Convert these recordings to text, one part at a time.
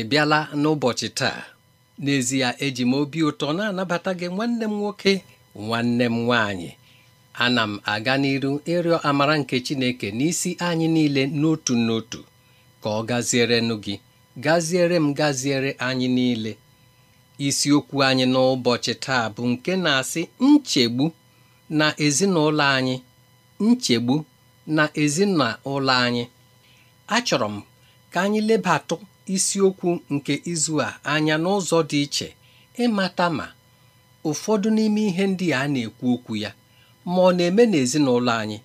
ị bịala n'ụbọchị taa n'ezie eji m obi ụtọ na-anabata gị nwanne m nwoke nwanne m nwaanyị ana m aga n'iru ịrịọ amara nke Chineke n'isi anyị niile n'otu n'otu ka ọ gazierenụ gị gaziere m gaziere anyị niile isiokwu anyị n'ụbọchị taa bụ nke na-asị nchegbu na ezinụlọ anyị nchegbu na ezinụlọ anyị achọrọ m ka anyị lebatụ isiokwu nke izu a anya n'ụzọ dị iche ịmata ma ụfọdụ n'ime ihe ndị a na-ekwu okwu ya ma ọ na-eme n'ezinụlọ anyị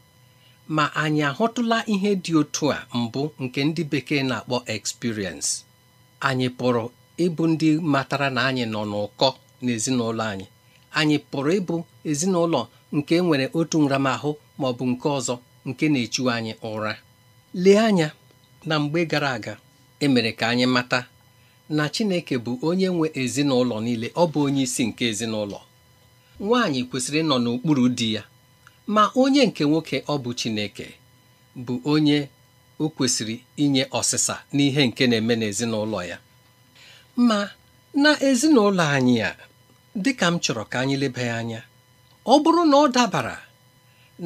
ma anyị ahụtụla ihe dị otu a mbụ nke ndị bekee na-akpọ experience anyị pụrụ ịbụ ndị matara na anyị nọ n'ụkọ n'ezinụlọ anyị anyị pụrụ ịbụ ezinụlọ nke e nwere otu nramahụ ma ọ bụ nke ọzọ nke na-echu anyị ụra lee anya na mgbe gara aga E mere ka anyị mata na Chineke bụ onye nwe ezinụlọ niile ọ bụ onye isi nke ezinụlọ nwaanyị kwesịrị ịnọ n'okpuru di ya ma onye nke nwoke ọ bụ Chineke bụ onye o kwesịrị inye ọsịsa n'ihe nke na-eme n'ezinụlọ ya ma na ezinụlọ anyị a dịka m chọrọ ka anyị leba anya ọ bụrụ na ọ dabara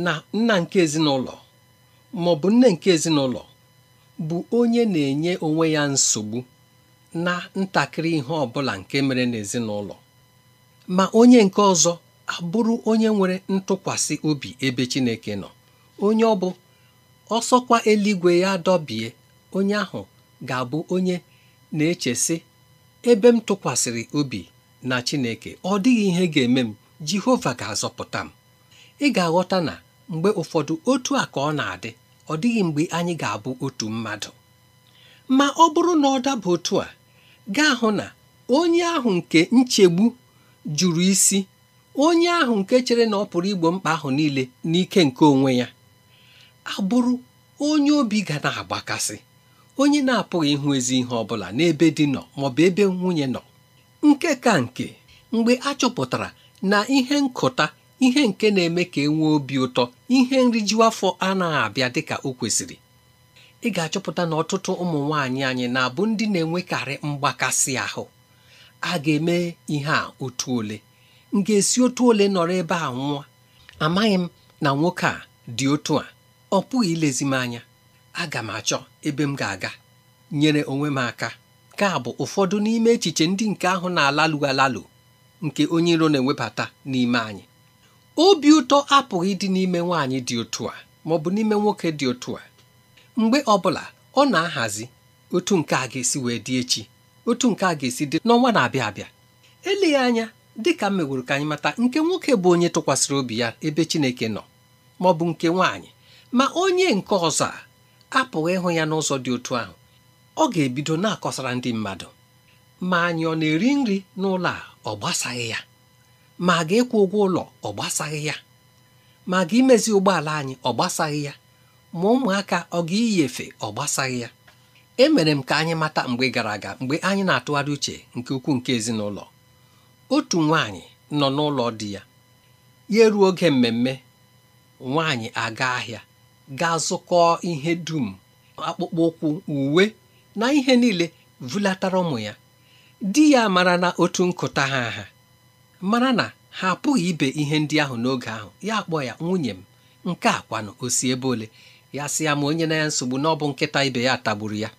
na nna nke ezinụlọ ma bụ nne nke ezinụlọ bụ onye na-enye onwe ya nsogbu na ntakịrị ihe ọ bụla nke mere n'ezinụlọ ma onye nke ọzọ abụrụ onye nwere ntụkwasị obi ebe Chineke nọ onye ọ bụ ọsọkwa eluigwe ya dọbie onye ahụ ga-abụ onye na-echesị ebe m tụkwasịrị obi na Chineke ọ dịghị ihe ga-eme m Jehova ga-azọpụta m ị ga-aghọta na mgbe ụfọdụ otu a ka ọ na-adị ọ dịghị mgbe anyị ga-abụ otu mmadụ ma ọ bụrụ na ọ daba otu a gaa hụ na onye ahụ nke nchegbu jụrụ isi onye ahụ nke chere na ọ pụrụ igbo mkpa ahụ niile n'ike nke onwe ya abụrụ onye obi ga na-agbakasị onye na-apụghị ịhụ ezi ihe ọ bụla n'ebe di nọ maọbụ ebe nwunye nọ nke ka nke mgbe a na ihe nkụta ihe nke na-eme ka e nwee obi ụtọ ihe nriju afọ anaghị abịa dịka o kwesịrị ị ga-achọpụta na ọtụtụ ụmụ nwaanyị anyị na-abụ ndị na-enwekarị mgbakasị ahụ a ga-eme ihe a otu ole m ga-esi otu ole nọrọ ebe a nwụọ amaghị m na nwoke a dị otu a ọ pụghị ilezi m anya aga m achọ ebe m ga-aga nyere onwe m aka ka bụ ụfọdụ n'ime echiche ndị nke ahụ na-alalụ alalụ nke onye iro na-ewebata n'ime anyị obi ụtọ apụghị dị n'ime nwaanyị dị otu a ma ọ bụ n'ime nwoke dị otu a mgbe ọbụla ọ na-ahazi otu nke a ga-esi wee dị echi otu nke a ga-esi dị n'ọnwa na-abịa abịa eleghị anya dị ka ka anyị mata nke nwoke bụ onye tụkwasịrị obi ya ebe Chineke nọ ma ọ bụ nke nwaanyị ma onye nke ọzọ a apụghị ịhụ ya n'ụzọ dị otu ahụ ọ ga-ebido na-akọsara ndị mmadụ ma anyị ọ na-eri nri n'ụlọ a ọ gbasaghị ya ma a ga-ekwu ụgwọ ụlọ ọ gbasaghị ya ma ga imezi ụgbọala anyị ọ gbasaghị ya ma ụmụaka ọ ga iyi efe ọ gbasaghị ya emere m ka anyị mata mgbe gara aga mgbe anyị na-atụgharị uche nke ukwuu nke ezinụlọ otu nwaanyị nọ n'ụlọ di ya ya eruo oge mmemme nwaanyị aga ahịa gaa zụkọọ ihe dum akpụkpọ ụkwụ uwe na ihe niile vulatara ụmụ ya di ya mara na otu nkụta ha ha mara na ha apụghị ibe ihe ndị ahụ n'oge ahụ ya kpọ ya nwunye m nke a kwanụ o si ebe ole ya sị ya ma onye na ya nsogbu na ọ bụ nkịta ibe ya tagburu ya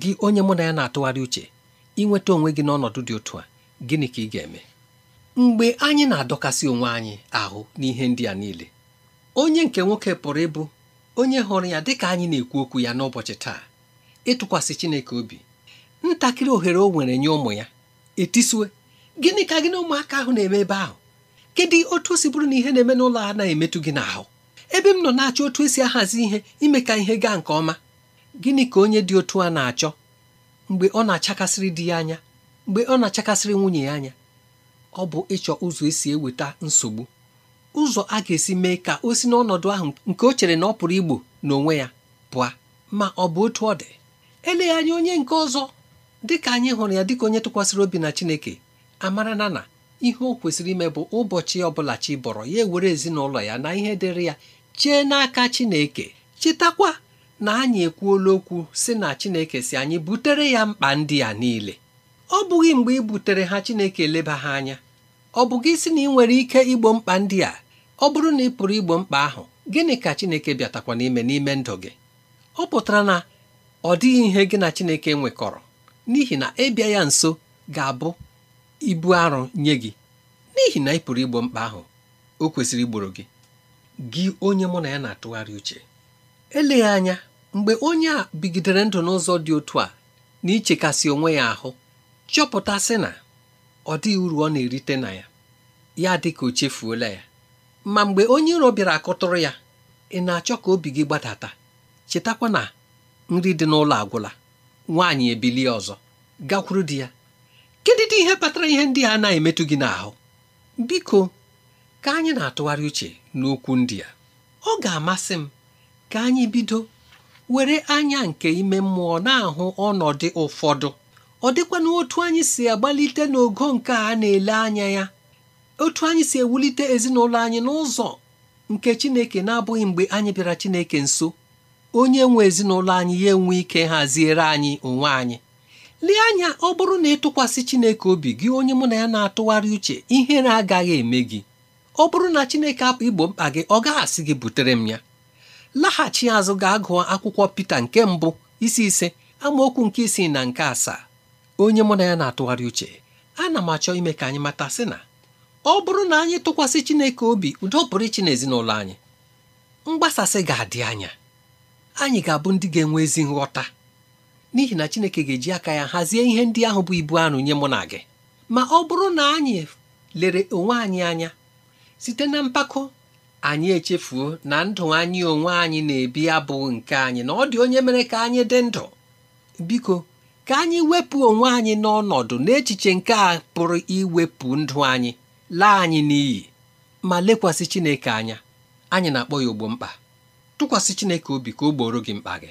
gị onye mụ na ya na-atụgharị uche ịnweta onwe gị n'ọnọdụ dị otu a gịnị ka ị ga-eme mgbe anyị na-adọkasị onwe anyị ahụ n'ihe ndị a niile onye nke nwoke pụrụ ịbụ onye hụrụ ya dịka anyị na-ekwu okwu ya n'ụbọchị taa ịtụkwasị Chineke obi ntakịrị ohere o nwere nye ụmụ ya etisue. gịnị ka gị na ụmụaka ahụ na-eme ebe ahụ kedu otu o si bụrụ na ihe na-eme n'ụlọ a na-emetụ gị n'ahụ ebe m nọ na-achọ otu esi ahazi ihe ime ka ihe gaa nke ọma gịnị ka onye dị otu a na-achọ mgbe ọ na-achakasịrị di ya anya mgbe ọ na-achakasịrị nwunye ya anya ọ bụ ịchọ ụzọ esi eweta nsogbu ụzọ a ga-esi mee ka o si n'ọnọdụ ahụ nke o chere na ọ pụrụ igbo n'onwe ya pụa. ma ọ bụ otu ọ dị eleghị anya onye nke ọzọ dịka anyị hụrụ ya dịka onye tụkwasịrị obi na Chineke amara na na ihe o kwesịrị ime bụ ụbọchị ọbụla chi bọrọ ya ewere ezinụlọ ya na ihe dịrị ya chee n'aka Chineke chetakwa na anyị ekwuola okwu si na Chineke si anyị butere ya mkpa ndị a niile ọ bụghị mgbe ị butere ha Chineke eleba ha anya ọ bụ gị si na ị nwere ike igbo mkpa ndị a ọ bụrụ na ị pụrụ igbo mkpa ahụ gịnị ka Chineke bịatakwa n'ime n'ime ndụ gị ọ pụtara na ọ dịghị ihe gị na Chineke nwekọrọ n'ihi na ịbịa ya nso ga-abụ ibu arụ nye gị n'ihi na ị pụrụ igbo mkpa ahụ o kwesịrị igboro gị gị onye mụ na ya na-atụgharị uche eleghị anya mgbe onye a bigidere ndụ n'ụzọ dị otu a na ichekasị onwe ya ahụ chọpụtasị na ọ dịghị uru ọ na-erite na ya ya dị ka o chefuola ya ma mgbe onye iro bịara akụtụrụ ya ị na-achọ ka obi gị gbadata chetakwa na nri dị n'ụlọ agwụla nwaanyị ebilie ọzọ gakwuru di ya dị ihe kpatara ihe ndị a na-emetụ gị n'ahụ biko ka anyị na-atụgharị uche n'okwu ndị a ọ ga-amasị m ka anyị bido were anya nke ime mmụọ na-ahụ ọnọdụ ụfọdụ ọ dịkwa na otu anyị si agbalite n'ogo nke a na-ele anya ya otu anyị si ewulite ezinụlọ anyị n'ụzọ nke Chineke na-abụghị mgbe anyị bịara Chineke nso onye nwe ezinụlọ anyị ya enwe ike haziere anyị onwe anyị lee anya ọ bụrụ na ịtụkwasị Chineke obi gị onye mụ na ya na-atụgharị uche ihere agaghị eme gị ọ bụrụ na Chineke apụ igbo mkpa gị ọ gaghị asị gị butere m ya laghachi azụ gaa gụọ akwụkwọ Pita nke mbụ isi ise amaokwu nke isii na nke asaa onye mụ na ya na-atụgharị uche ana m achọ ime ka anyị mata sị na ọ bụrụ na anyị tụkwasị Chineke obi udo pụrụ iche n'ezinụlọ anyị mgbasasị ga-adị anya anyị ga-abụ ndị ga-enwe ezi nghọta n'ihi na Chineke ga-eji aka ya hazie ihe ndị ahụ bụ ibu anụ nye mụ na gị ma ọ bụrụ na anyị lere onwe anyị anya site na mpako anyị echefuo na ndụ anyị onwe anyị na-ebi abụ nke anyị na ọ dị onye mere ka anyị dị ndụ biko ka anyị wepụ onwe anyị n'ọnọdụ n'echiche nke a pụrụ iwepụ ndụ anyị laa anyị n'iyi ma lekwasị Chineke anya anyị na-akpọ ya ogbo mkpa tụkwasị Chineke obi ka o gboro gị mkpa gị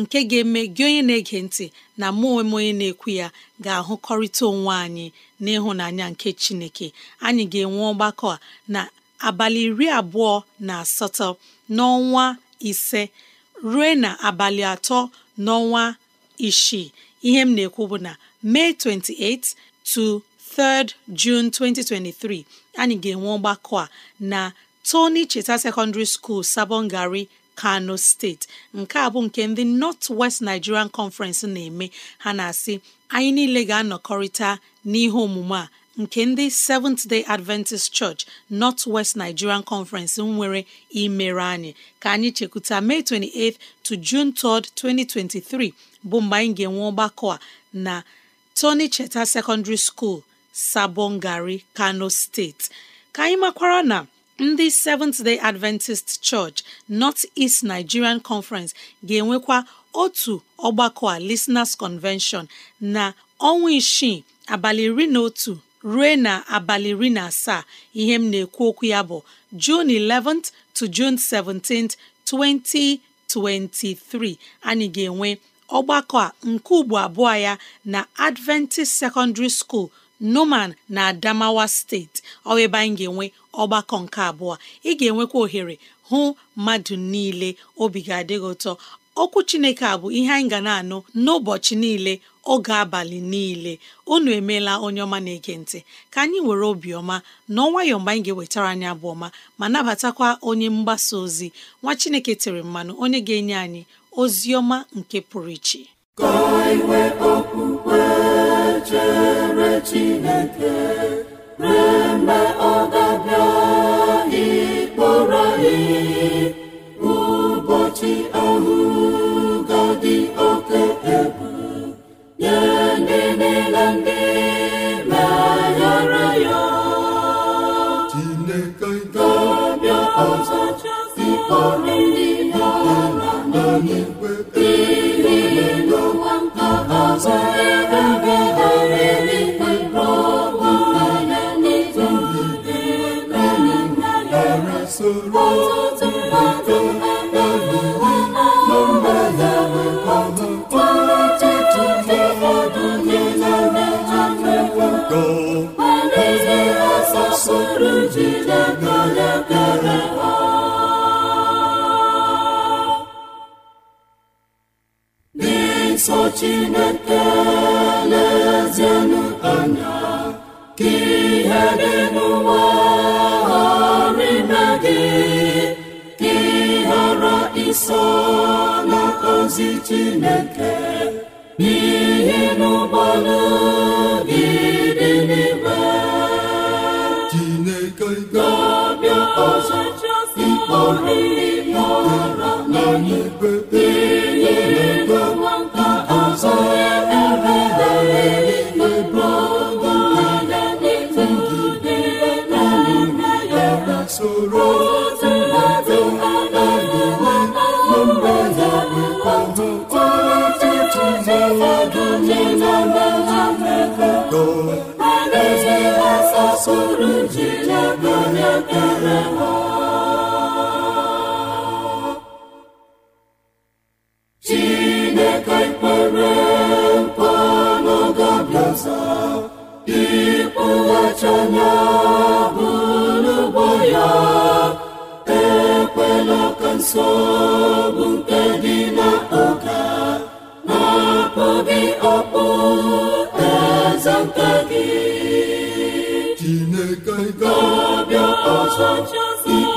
nke ga-eme gị onye na-ege ntị na mụ onwe onye na-ekwu ya ga-ahụkọrịta onwe anyị n'ịhụnanya nke Chineke anyị ga-enwe ọgbakọ a na abalị iri abụọ na asatọ n'ọnwa ise ruo na abalị atọ n'ọnwa isii ihe m na-ekwu bụ na mee 28 to 3rd 2023 anyị ga-enwe ọgbakọ a na Tony Cheta Secondary School Sabongari kano steeti nke a bụ nke ndị nọt west nigerian conference na-eme ha na-asị anyị niile ga-anọkọrịta n'ihe omume a nke ndị Seventh Day Adventist Church nọt West Nigerian Conference nwere imere anyị ka anyị chekwuta May 28th to June 3rd, 2023 bụ mgbe anyị ga-enwe ọgbakọ a na Tony Cheta Secondary School, Sabongari, Kano steeti. ka anyị makwara na ndị Seventh Day Adventist Church North East Nigerian Conference ga-enwekwa otu ọgbakọ a Listeners Convention na ọnwa isii abalị iri na otu ruo na abalị iri na asaa ihe m na-ekwu okwu ya bụ Jun 11th to June 17th 2023 anyị ga-enwe ọgbakọ a nke ugbo abụọ ya na Adventist Secondary School Numan na Adamawa steeti ọebe anyị ga-enwe ọgbakọ nke abụọ ị ga-enwekwa ohere hụ mmadụ niile obi ga adịghị ụtọ okwu Chineke a bụ ihe anyị ga na-anụ n'ụbọchị niile oge abalị niile unu emeela onye ọma na ekentị ka anyị were obiọma na ọnwayọ mgbe anyị ga-ewetara anyị abụọma ọma ma nabatakwa onye mgbasa ozi nwa Chineke tere mmanụ onye ga-enye anyị ozi ọma nke pụrụ iche chere chineke remgbe ọ ga-abịa ịkpọrọ ihe ụbọchị ahụ ga-adị oke egwu nye ndị niile ndị meghere ya chineke ga-abịa ọzọ si ọrụ uru ji lebere ha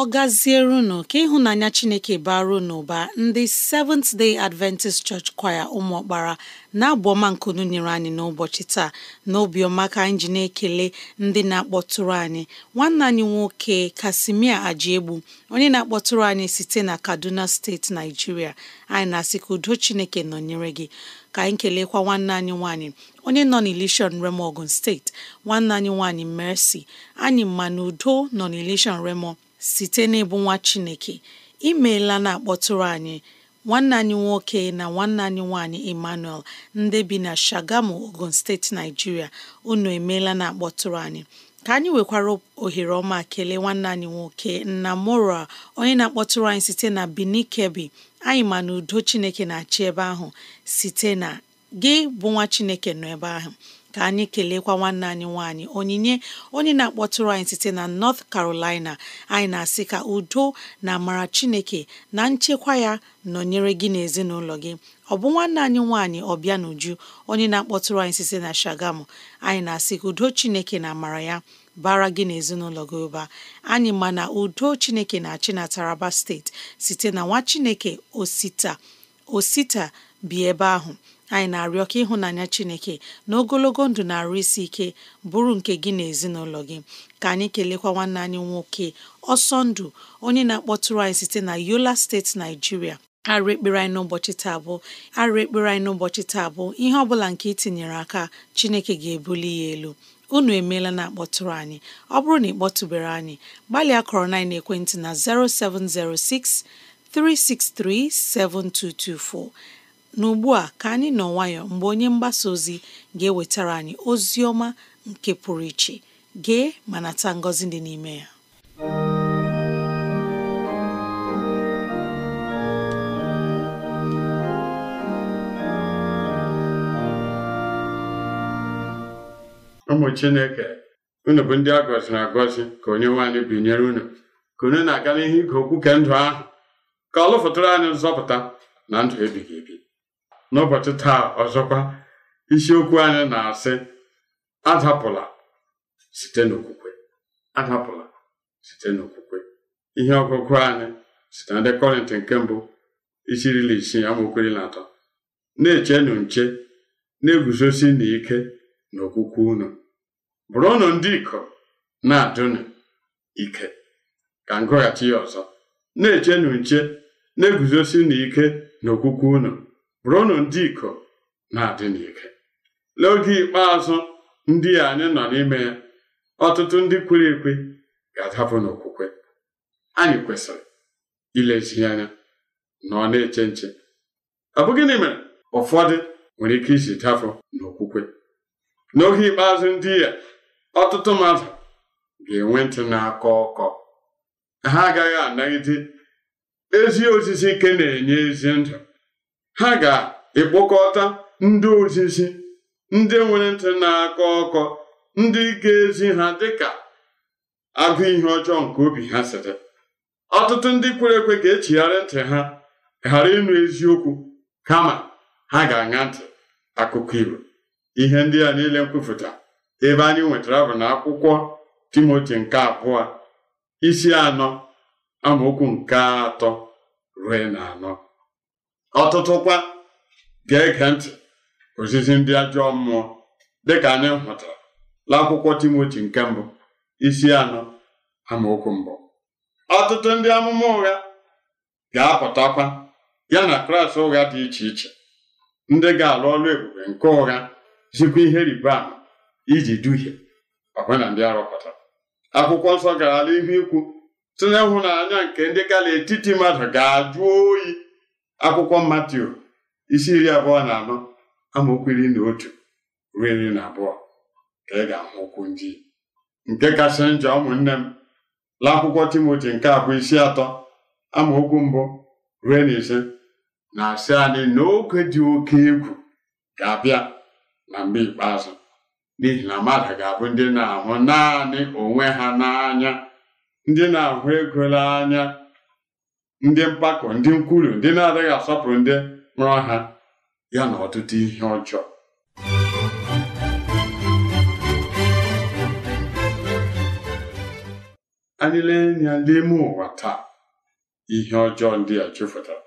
ọ gazierinụ ka ịhụnanya chineke baruo n'ụba ndị Seventh Day Adventist Church Choir ụmụọkpara na-abụ nkunu nyere anyị n'ụbọchị taa n'obiọma ka anyị ji na-ekele ndị na-akpọtụrụ anyị nwanne anyị nwoke Kasimia Ajiegbu onye na-akpọtụrụ anyị site na Kaduna steeti Naijiria anyị na-asị ka udo chineke nọnyere gị ka anyị kelekwa nwanne anyị nwaanyị onye nọ n'Ilishọn Remo Ogun steeti nwanne anyị nwaanyị Mercy anyị ma na udo nọ n'Ilishọn Remo site n'ịbụ nwa Chineke imeela na-akpọtụrụ anyị nwanne anyị nwoke na nwanne anyị nwaanyị Emmanuel ndị bi na Shagamu Ogun steeti Naijiria unu emeela na-akpọtụrụ anyị ka anyị nwekwara ohere ọma kelee nwanne anyị nwoke nna mora onye na-akpọtụrụ anyị site na Benin kebi anyị ma udo Chineke na-achị ebe ahụ site na gị bụ nwa Chineke nọ ebe ahụ ka anyị kelekwa nwanne anyị nwanyị onyinye onye na-akpọtụrụ anyị site na North Carolina anyị na-asị ka udo na amara Chineke na nchekwa ya nọnyere gị n'ezinụlọ gị ọ bụ nwanne anyị nwanyị ọbịa n'uju onye na-akpọtụrụ anyị site na Shagamu anyị na-asị ka udo Chineke na amara ya bara gị na ezinụlọ gị ụba anyị ma na udo Chineke na-achị na Taraba steeti site na nwa Chineke Osita Osita bi ebe ahụ anyị na-arịọ ka ịhụnanya Chineke na ogologo ndụ na-arụ isi ike bụrụ nke gị na ezinụlọ gị ka anyị kelekwa nwanne anyị nwoke ọsọ ndụ onye na-akpọtụrụ anyị site na Yola steeti Naijiria arụ ekpere anyị n'ụbọchị taa bụ arụ ekpere anyị n'ụbọchị taa bụ ihe ọ bụla nke itinyere aka Chineke ga-ebuli ya elu unu emeela na akpọtụrụ anyị ọ bụrụ na ị kpọtụbere anyị gbalịa kọrọ na ekwentị na 0706 363 7224 N'ugbu a ka anyị nọ nwayọọ mgbe onye mgbasa ozi ga-ewetara anyị ozi ọma nke pụrụ iche gee ma nata ngọzi dị n'ime ya ụmụ Chineke unu bụ ndị a gọziri agọzi ka onye nwaanyị binyere unu ka unu na-aga n'ihu ige okwu nke ndụ ahụ ka ọ lụfụtara anyị nzọpụta na ndụ ebighị ebi n'ụbọchị taa ọzọkwa isiokwu anyị na-asị adapụla site n'okwukwe adapụla site n'okwukwe ihe ọgụgụ anyị site na ndị kọrịntị nke mbụ isi iri na na atọ na-echenụ nche na-eguzosi n'ike n'okwukwe unu bụrụnụ ndị ikom na-adụnụ ike ka ngụghachi ya ọzọ na-echenụ nche na-eguzosi n'ike n'okwukwe unu bụrụnụ ndị ikom na-adị n'ike n'oge ikpeazụ ndị anyị nọ n'ime ya ọtụtụ ndị kwere ekwe ga-adapụ n'okwukwe anyị kwesịrị ilezi anya na ọ na-eche nche ọ bụ gịnị mere ụfọdụ nwere ike isi dafụ n'okwukwe n'oge ikpeazụ ndị ya ọtụtụ mmadụ ga-enwe ntị na-akọ ọkọ ha agaghị anagide ezi osisi ike na-enye ezi ndụ ha ga-ekpokọta ndị ozizi ndị nwere ntị na-akọ ọkọ ndị ga-ezi ha dịka agụ ihe ọjọọ nke obi ha sịrị ọtụtụ ndị kwere ekwe ga-echigharị ntị ha ghara ịnụ eziokwu kama ha ga-aṅa ntị akụkọ igbo ihe ndị a niile nkwupụta ebe anyị nwetara bụ na akwụkwọ Timoti nke abụọ isi anọ amaokwu nke atọ ruo na anọ ọtụtụ kwa ga-ege ntị ozizi ndị ajọ mmụọ dịka anyị hụtara n'akwụkwọ timoti nke mbụ isi anọ amaokwu mbụ ọtụtụ ndị amụma ụgha ga-apụtakwa ya na klas ụgha dị iche iche ndị ga-alụ ọrụ ebube nke ụgha zikwa ihe riba ama iji duhie ọbụna ndị arụpụtara akwụkwọ nsọ gara n'ihu ikwu hụ n'anya nke ndị ga etiti mmadụ ga-ajụ oyi akwụkwọ matthew isi iri abụọ na anọ amaokwu iri na otu ruo iri na abụọ ka ị ga-ahụ ndị nke kasị njọ ụmụnne m la akwụkwọ Timoti nke abụọ isi atọ amaokwu mbụ ruo na ise na-asị anyị na oge dị oke egwu ga-abịa na mgbe ikpeazụ n'ihi na mmadụ ga-abụ ndị na-ahụ naanị onwe ha n'anya ndị na-ahụ ego n'anya ndị mpako ndị nkwulu ndị na-adịghị asọpụrụ ndị mụrụ ha ya na ọtụtụ ihe ọjọọ anyị lee anya ime ụwa taa ihe ọjọọ ndị a chụfụtara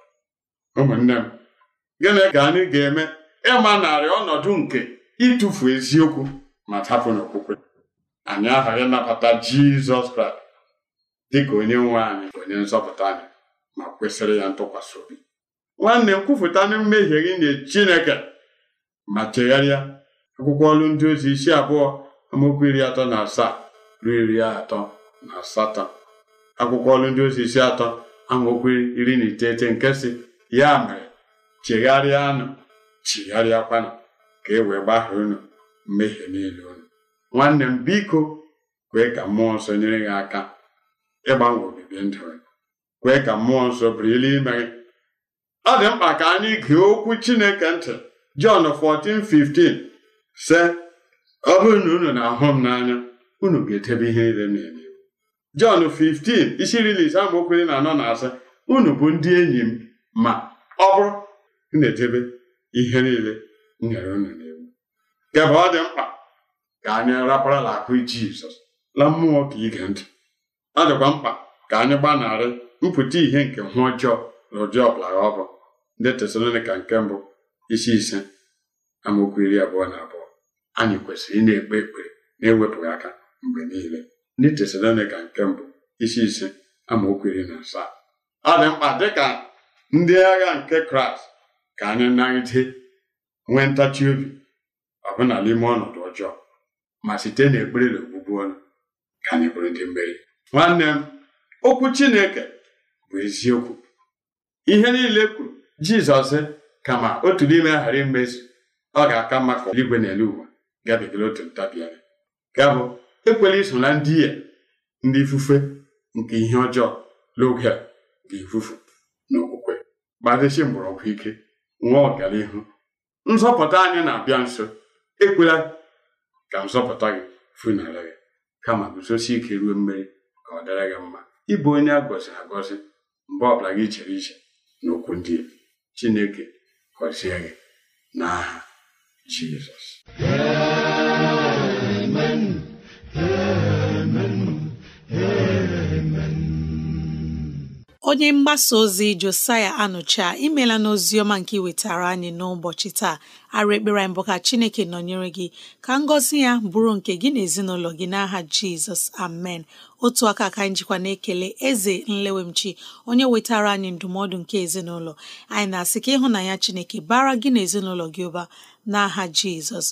ụmụnne m gịnị ka anyị ga-eme ịma narị ọnọdụ nke ịtụfu eziokwu ma tapụ n'okwukwe anyị aghaghị nabata Jizọs Kraịst dị ka onye nwe anyị onye nzọpụta anyị ma kwesịrị ya ntụkwasị obi nwanne m kwupụta na mmehie gị nye Chineke ma chegharịa akwụkwọ ọrụ ndị ozi isi abụọ amaokwu iri atọ na asaa ruo iri atọ na asatọ akwụkwọ ọrụ ndị ozi isi atọ amaokwu iri na iteghete nke si ya mere chegharịanụ kwana ka e wee gbahie unu mmehie niile unu nwanne m biko kwee ka mmụọ nsọ nyere gị aka ịgbanwe obibi ndụ gị kwee ka mmụọ nsọ bụrụ ilu ime gị ọ dị mkpa ka anyị gee okwu chineke ntị Jọn 14:15 sị ọ bụrụ na unu na-ahụ m n'anya unu ga-edebe ihe niile na-eme Jọn 15 isi iri ise amaokwu na anọ na asa unu bụ ndị enyi m ma ọ bụrụ na-edebe ihe niile nyere unu na n'iwu kebe ọ dị mkpa ka anyị raparala akụ Jizọs la mmụọ ka ige ntị ọ dịkwa mkpa ka anyị gbanarị mpụta ihe nke nhụ ọjọọ na ụdị ọbụla ọ bụ ndị tesalonika nke mbụ isi ise amaokwu iri abụọ na abụọ anyị kwesịrị ị ekpe ekpere na-ewepụghị aka mgbe niile ndị tesalonika nke mbụ isi ise amaokwu iri na asaa ọ dị mkpa dịka ndị agha nke kraịst ka anyị nagide nwee ntachi obi ọbụna n'ime ọnọdụ ọjọọ ma site n'ekpere na ogbugbu ọnụ ka anyị bụrụ ndị mmeri nwanne m okwu chineke bụ eziokwu ihe niile kwuru jizọs kama otu n'ime aghara ghara imezu ọ ga-aka mma ka eluigwe na elu ụwa gabigara otu ntabianya ya bụ ekwela iso na ndị ya ndị ifufe nke ihe ọjọọ n'oge a ga-efufu n'okwukwe gbadesi mgbọrọgwụ ike nwa ọganihu nzọpụta anyị na-abịa nso ekwela ka nzọpụta gị funara gị kama guzosi ike ruo mmeri ka ọ dịrị gị mma ịbụ onye a agọzi mgbe ọbụla gị chere iche n'okwu ndị Chineke gọzie gị n'aha Jizọs amen amen amen onye mgbasa ozi Josiah Anụcha imela n'ozi ọma nke iwetara anyị n'ụbọchị taa arụ ekpere mbụ bụ ka Chineke nọnyere gị ka ngọzi ya bụrụ nke gị na ezinụlọ gị n'aha Jizọs amen otu aka ka anyị na-ekele eze nlewemchi onye wetara anyị ndụmọdụ nke ezinụlọ anyị na-asị ka ịhụnanya chineke bara gị na ezinụlọ gị ụba n'aha jizọs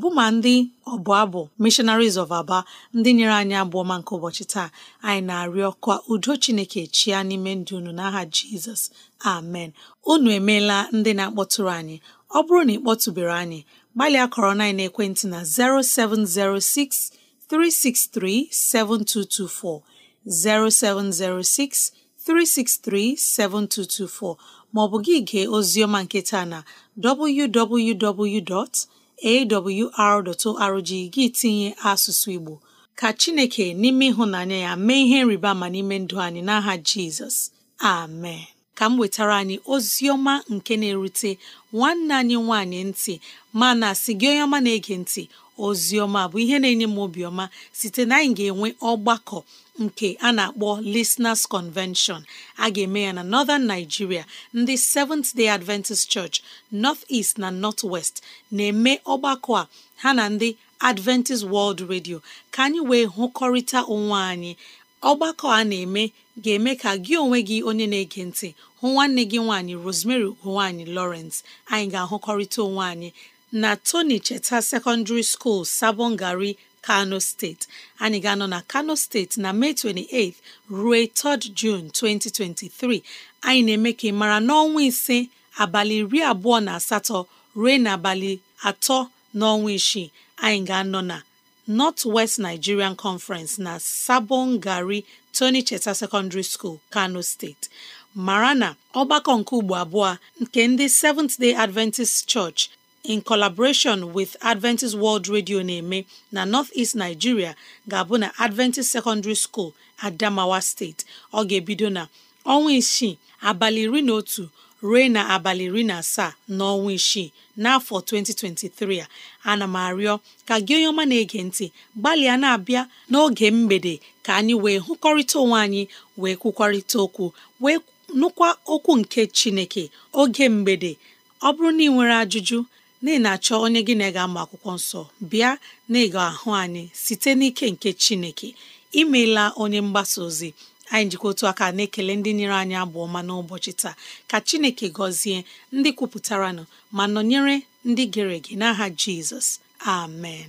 bụma ndị ọbụ abụ missionaries of aba ndị nyere anyị abụọ nke ụbọchị taa anyị na-arịọ ka udo chineke chia n'ime ndụ unu n'aha jizọs amen unu emeela ndị na-akpọtụrụ anyị ọ bụrụ na ị kpọtụbere anyị gbalịa kọrọ a9 ekwentị na 0706 363 7224 0706 363 7224 maọbụ gị gee oziọma nketa na www.awr.org gị tinye asụsụ Igbo ka Chineke n'ime ịhụnanya ya mee ihe nriba ma n'ime ndụ anyị n'aha Jizọs amen ka m wetara anyị ozioma nke na-erute nwanne anyị nwanyị ntị mana sị gị onye ọma na-ege ntị oziọma bụ ihe na-enye m obiọma site na anyị ga-enwe ọgbakọ nke a na-akpọ Listeners Convention a ga-eme ya na Northern Nigeria ndị Seventh Day Adventist Church North East na North West na-eme ọgbakọ a ha na ndị Adventist World Radio ka anyị wee hụkọrịta onwe anyị ọgbakọ a na-eme ga-eme ka gị onwe gị onye na-ege ntị hụ nwanne gị nwaanyị Rosemary ugo nwaanyị Lawrence anyị ga-ahụkọrịta onwe anyị na Tony Cheta Secondary School gari Kano steeti anyị ga-anọ na Kano steeti na Mee 28 ruo 3 June 2023 anyị na-eme ka ị mara n'ọnwa ise abalị iri abụọ na asatọ ruo n'abalị atọ n'ọnwa isii anyị ga-anọ na North West Nigerian Conference na sabon gari Tony Cheta Secondary School Kano steeti mara na ọgbakọ nke ugbo abụọ nke ndị Seventh Day Adventist Church in collaboration with Adventist World Radio na-eme na North-East Nigeria ga-abụ na Adventist Secondary School Adamawa State ọ ga-ebido na ọnwa isii abalị iri na otu ruo na abalị iri na asaa n'ọnwa isii n'afọ 2023 a ana m arịọ ka gị onye ọma na-ege ntị gbalịa na-abịa n'oge mgbede ka anyị wee hụkọrịta onwe anyị wee kwukwarịta okwu wee nụkwa okwu nke Chineke oge mgbede ọ bụrụ na ị nwere ajụjụ na ị na-achọ onye gị na ị ga-amụ akwụkwọ nsọ bịa na ịga ahụ anyị site n'ike nke Chineke imeela onye mgbasa ozi anyị njikọ otu aka na-ekele ndị nyere anyị abụ ọma n'ụbọchị taa ka Chineke gọzie ndị kwupụtaranụ ma nọnyere ndị gere ege n'aha Jizọs amen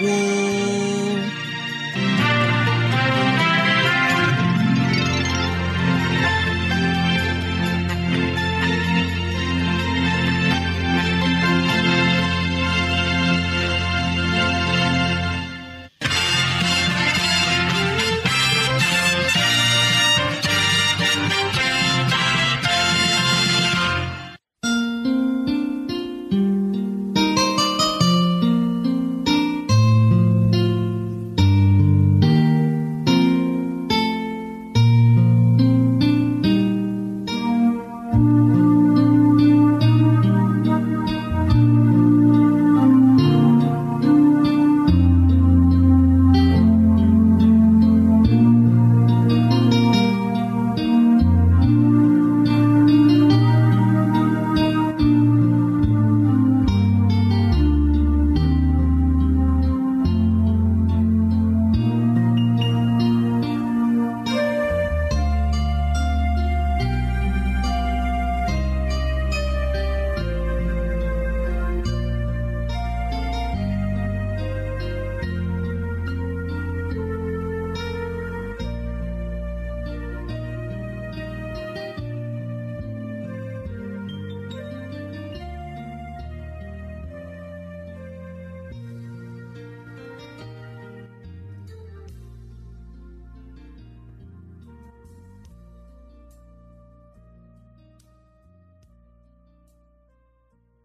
wọ